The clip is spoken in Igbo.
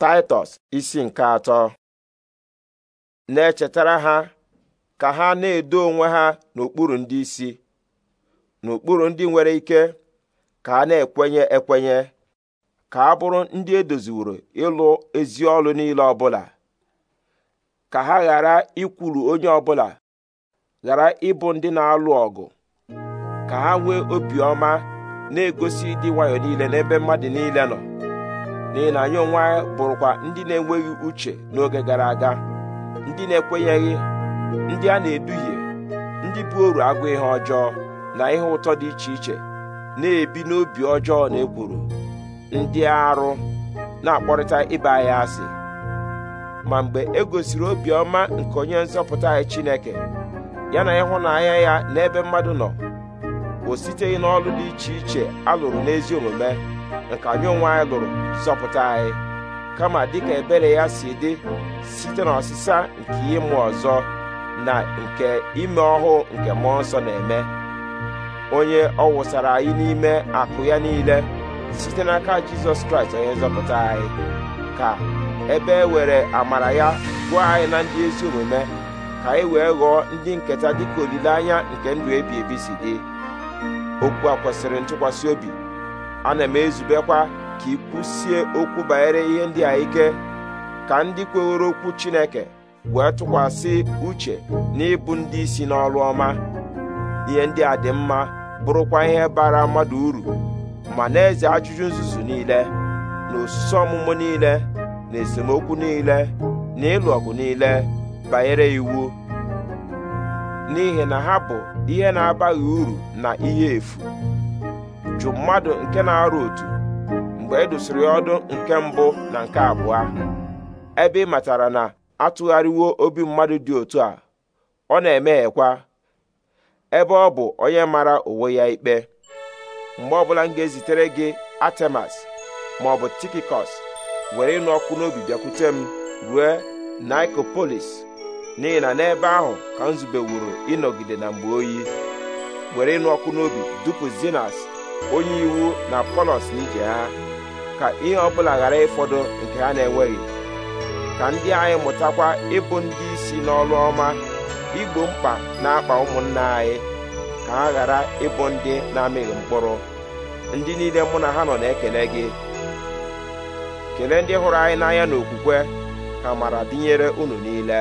Taịtọs isi nke atọ na-echetara ha ka ha na-edo onwe ha n'okpuru ndị isi n'okpuru ndị nwere ike ka a na-ekwenye ekwenye ka a bụrụ ndị edoziworo ịlụ ezi ọlụ niile ọbụla ka ha ghara ikwulu onye ọbụla ghara ịbụ ndị na-alụ ọgụ ka ha nwee obiọma na-egosi ịdị nwayọ niile n'ebe mmadụ niile nọ n'ihi na anyị onwe anyị bụrụkwa ndị na-enweghị uche n'oge gara aga ndị na-ekwenyeghị ndị a na-eduhie ndị bụ oru agụ ihe ọjọọ na ihe ụtọ dị iche iche na-ebi n'obi ọjọọ na ekwuru ndị arụ na-akpọrịta ịba anyị asị ma mgbe e gosiri obiọma nke onye nzọpụta anyị Chineke ya na ịhụnanya ya n'ebe mmadụ nọ o siteghị n'ọlụ dị iche iche a lụrụ n'ezi omume nke anyị onwe anyị lụrụ zọpụta anyị kama dịka ebere ya si dị site n'ọsịsa nke ịmụ ọzọ na nke ime ọhụụ nke mmụọ nsọ na-eme onye ọ wụsara anyị n'ime akụ ya niile site n'aka jizọs kraịst onye nzọpụta anyị ka ebe e were amara ya gụọ anyị na ndị ezi omume ka anyị wee ghọọ ndị nketa dịka olileanya nke ndụ ebi ebi si dị okwu a kwesịrị ntụkwasị obi ana m ezubekwa ka ị kwụsie okwu banyere ihe ndị a ike ka ndị kweworo okwu Chineke wee tụkwasị uche n'ịbụ ndị isi n'ọrụ ọma ihe ndị a dị mma bụrụkwa ihe bara mmadụ uru ma na-eze ajụjụ nzuzu niile na osisi ọmụmụ niile na esemokwu niile na ịlụ ọgụ niile banyere iwu n'ihi na ha bụ ihe na-abaghị uru na ihe efu jụ mmadụ nke na-arụ otu mgbe e dosiri ọdụ nke mbụ na nke abụọ ebe ị matara na atụgharịwo obi mmadụ dị otu a ọ na-emeghekwa ebe ọ bụ onye mara onwe ya ikpe mgbe ọbụla m ga-ezitere gị atemas ma ọ bụ tikikos were ịnụ ọkụ n'obi bịakwute m rue nikopolis n'ihi na n'ebe ahụ ka m zubewuru ịnọgide na mgbe oyi were ịnụ ọkụ n'obi dupu zinas onye iwu na polos n'ije ha ka ihe ọbụla ghara ịfọdụ nke ha na-enweghị ka ndị anyị mụtakwa ịbụ ndị isi n'ọrụ ọma igbo mkpa na-akpa ụmụnna anyị ka ha ghara ịbụ ndị na-amịghị mkpụrụ ndị niile mụ na ha nọ na-ekele gị kelee ndị hụrụ anyị n'anya n'okwukwe ka mara dịnyere unu niile